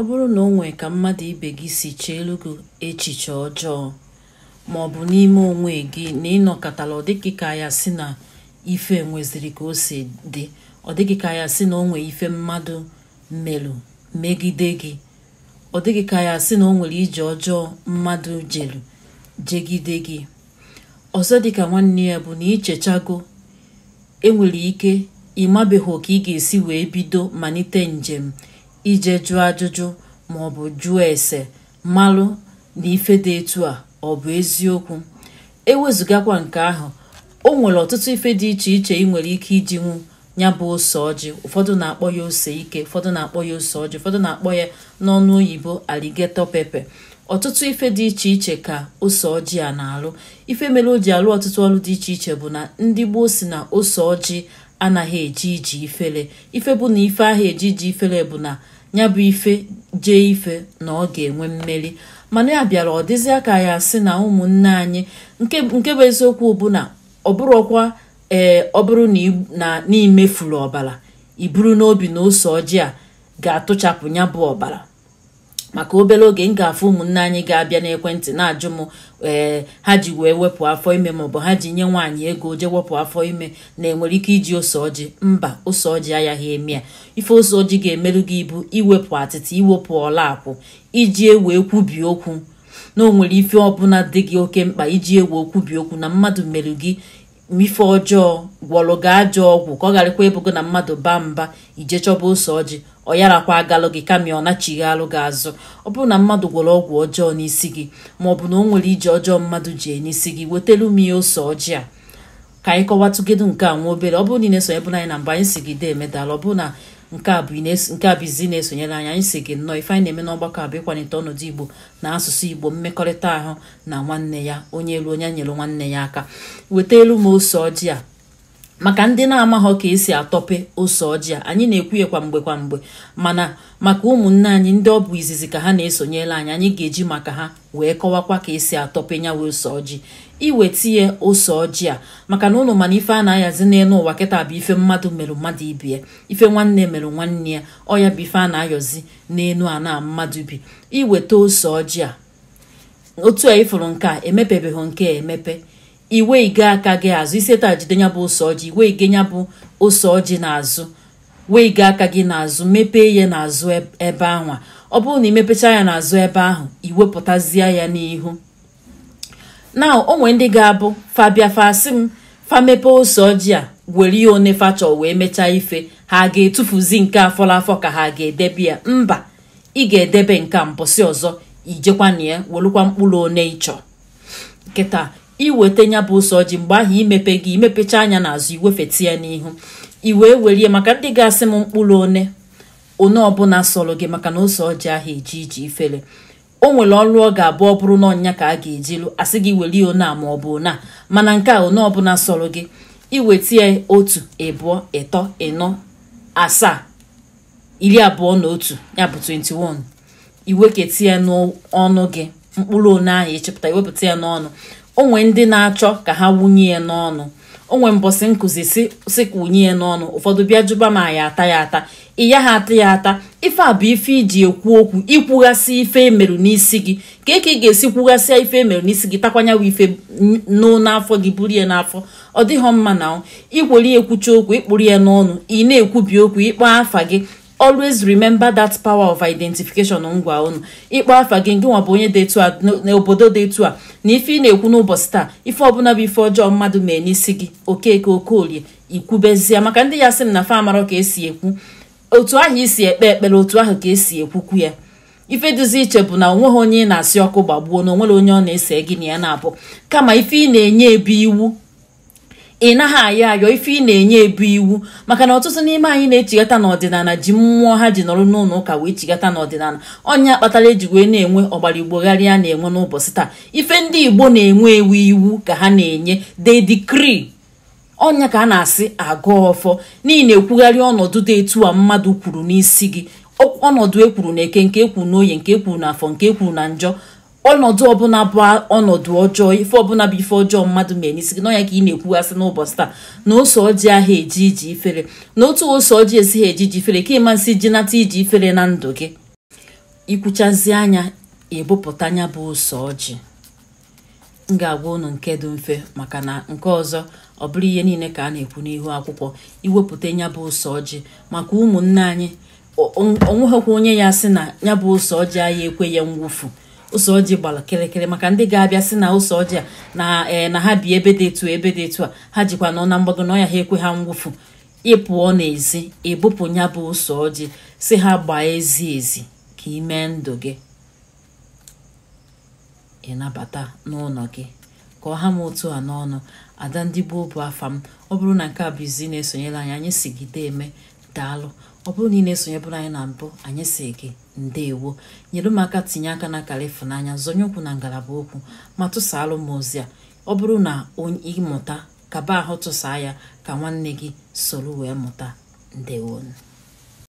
ọ bụrụ na o nwee ka mmadụ ibe gị si cheelu gị echiche ọjọọ ma ọ bụ n'ime onwe gị na ịnọkọtala ọ dịghị ka ya si na ife nweziri ka o si dị ọ dịghị ka ya si na o nwee ife mmadụ melụ megide gị ọ dịghị ka ya si na o nwere ije ọjọọ mmadụ jelu jegide gị ọzọ dịka nwanne ya bụ na ichechago enwere ike ịmabeghị ka ị ga-esi wee bido malite njem ije jụọ ajụjụ ma ọ bụ jụọ ese malụ na ife dị etu a ọ bụ eziokwu ewezụgakwa nke ahụ o nwere ọtụtụ ife dị iche iche ị nwere ike iji nwu ya bụ ose ọjị ụfọdụ na-akpọ ya ose ike ụfọdụ na-akpọ ya ose ọjị ụfọdụ na-akpọ ya n'ọnụ oyibo aligetọ pepe ọtụtụ ife dị iche iche ka ose ọjị a na-alụ ife mere o ji alụ ọtụtụ ọrụ dị iche iche bụ na ndị gboo si na ose ọjị anaghị eji iji ifere ife bụ na ife ahụ eji iji ifere bụ na ya bụ ife jee ife na ọ ga-enwe mmeri mana ya bịara ọ dịzịa ka ya sị na ụmụnne anyị nke bụ eziokwu bụ na ọ bụrụkwa ee eh, ọ bụrụ na n'imefuru ọbara i buru n'obi na ose ọjị a ga-atụchapụ ya bụ ọbara maka obere oge m ga-afụ ụmụnne anyị ga-abịa n'ekwentị na-ajụ m ee eh, ha ji wee wepụ afọ ime maọbụ ha ji nye nwaanyị ego jee wepụ afọ ime na enwere ike iji ose ọjị mba ose ọjị agaghị eme ya ife ose ọjị ga-emerụ gị ibu iwepụ atịtị iwepụ ọla akwụ iji ewe kwubi okwu na o nwere ife ọbụla dị gị oke mkpa iji ewe okwubi okwu na mmadụ merụ gị ife ọjọọ gwọrọ gị ajọ ọgwụ ka ọ gharakwa ebugo na mmadụ baa mba ije chọba ose ọjị ọ yarakwa agalụ gị kama ọ nachighị alụ gị azụ ọ bụrụ na mmadụ gwọrọ ọgwụ ọjọọ n'isi gị ma ọ bụ na o nwere ije ọjọọ mmadụ ji e n'isi gị wetelu m ihe ose ọjị a ka anyị kọwatụgedu nke a nwa obere ọ bụrụ na ị na-esonye bụ anyị na mgbe anyị si gị dee medal ọ bụ na nke a bụ izi na-esonyere anyị anyị si gị nnọọ ife anyị na-eme n'ọgbakọ a bụ ịkwalite ọnọdụ igbo na asụsụ igbo mmekọrịta ahụ na nwanne ya onye elu onye nyere nwanne ya aka weta elu ma ose ọjị a maka ndị na-amaghọ ka esi atọpe ose ọjị a anyị na-ekwuye kwa mgbe kwa mgbe mana maka ụmụnne anyị ndị ọ bụ izizi ka ha na-esonyela anyị anyị ga-eji maka ha wee kọwakwa ka esi atọpe nyawa ose ọjị iwetinye ose ọjị a maka na ụlọ mana ife a na-ahazi n'elu ụwa kịta bụ ife mmadụ mere mmadụ ibi ya ife nwanne mere nwanne ya ọ ya bụ ife a na-ayọzi n'elu ana mmadụ bi iweta ose ọjị a otu a ịfụrụ nke a emepebeghị nke a emepe iwe ige aka gị azụ iseta jide ya bụ ose ọjị iwe ige ya bụ ose ọjị n'azụ wee ige aka gị n'azụ mepee ya n'azụ ebe anwa ọ bụrụ na imepecha ya n'azụ ebe ahụ iwepụtazie ya n'ihu na o ndị ga-abụ fabia fasi m famepe ose ọjị a were ya one fachọ wee mechaa ife ha ga-etufuzi nke afọla afọ ka ha ga-edebe ya mba ị ga-edebe nke mposi ọzọ ijekwana ya welukwa mkpụrụ one ịchọ nkịta. iweta ya bụ ụsọ ji mgbe ahụ imepe gị imepecha anya n'azụ iwefeta ya n'ihu i wee werie maka ndị ga-asị m mkpụrụ one one ọbụla sọrọ gị maka na ose ọjị ahụ eji iji ifere o nwere ọrụ ọ ga-abụ ọ bụrụ na ọnya ka a ga-ejilu asị gị welie one a ma ọ bụ one mana nke a one ọbụla sọrọ gị iweta ya otu ịbụọ ịtọ ịnọ asaa iri abụọ na otu ya bụ 21 iweketa ya n'ọnụ gị mkpụrụ one ahụ ịchịpụta iwepụta ya n'ọnụ onwe ndị na-achọ ka ha wunye ya n'ọnụ onwe mbọsị nkụzi si ka wunye ya n'ọnụ ụfọdụ bịa jụba ma ya ata ya ata ịya ha ata ya ata ife a bụ ife iji ekwu okwu ikwughasị ife emerụ n'isi gị ka eke ị ga-esi kwughasịa ife emerụ n'isi gị takwanyawa ife nụ n'afọ gị buru ya n'afọ ọ dịghọ mma na ikwere ekwucha okwu ịkpụrụ ya n'ọnụ ị na-ekwubi okwu ịkpọ afa gị always remember that power of identification ngwa unu ịkpọ afa gị ngị nwa bụ onye dị a n'obodo dị etu a na ife ị na-ekwu n'ụbọchị taa ife ọbụla bụ ife ọjọọ mmadụ mee n'isi gị okeke okolie ikwubezie maka ndị ya sị m na fa amarọ ka esi ekwu otu ahụ isi ekpe ekpere otu ahụ ka esi ekwukwu ya ife duzi iche bụ na onweghị onye ị na-asị ọkụ gbagbuo na onwere onye ọ na-ese gị na ya na-abụ kama ife ị na-enye ebe iwu ị naghị ayọ ayọ ife ị na-enye ebu iwu maka na ọtụtụ n'ime anyị na-echigata n'ọdịnala ji mmụọ ha ji nọrọ n'ụlọ ụka wee chigata n'ọdịnala ọnya kpatara eji wee na-enwe ọgbara igbogharịa na-enwe n'ụbọchị taa ife ndị igbo na-enwe ewu iwu ka ha na-enye they decree ọnya ka a na-asị agụ ọfọ n'ihi na-ekwugharị ọnọdụ dị etu a mmadụ kwuru n'isi gị ọnọdụ ekwuru na eke nke ekwuru n'oye nke ekwuru na afọ nke ekwuru na njọ ọnọdụ ọbụla bụ ọnọdụ ọjọọ ife ọbụla bụ ife ọjọọ mmadụ mere isi gị n'ọnya ka ị na-ekwugasị n'ụbọchị taa na ose ọjị ahụ eji iji ifere na otu ose ọjị esighị eji iji ifere ka ịmasị ji nata iji ifere na ndụ gị ikwuchazi anya ebupụta anya bụ ose ọjị m ga-agwa unu nke dị mfe maka na nke ọzọ ọ bụrụ ihe niile ka a na-ekwu n'ihu akwụkwọ iwepụta ya bụ ose ọjị maka ụmụnne anyị onweghịkwa onye ya sị na ya bụ ose ọjị anyị ekwe ya mwụfu ose ọjị gbara kịrịkịrị maka ndị ga-abịa si na ose ọjị a na ee eh, na ha bi ebe dị etu ebe dị etu a ha jikwa nọ na mgbago n'ọya ha ekwe ha mwụfu ịpụọ n'ezi ịbụpụ ya bụ ose ọjị si ha gbaa ezi ezi ka ị mee ndụ gị ịnabata n'ụlọ gị ka ọha m otu a n'ọnụ ada ndị gboo bụ afa m ọ bụrụ na nke a bụ izi na-esonyere anyị anyị sigide eme daalụ ọ bụrụ na ị na-esonyebụrụ anyị na mbụ anyị si gị ndeewo nyere m aka tinye aka na akara zonye okwu na ngalaba okwu ma tụsaalụ m ozi a ọ bụrụ na ịmụta kaba ahụ tụsaa ya ka nwanne gị soro wee mụta ndeewo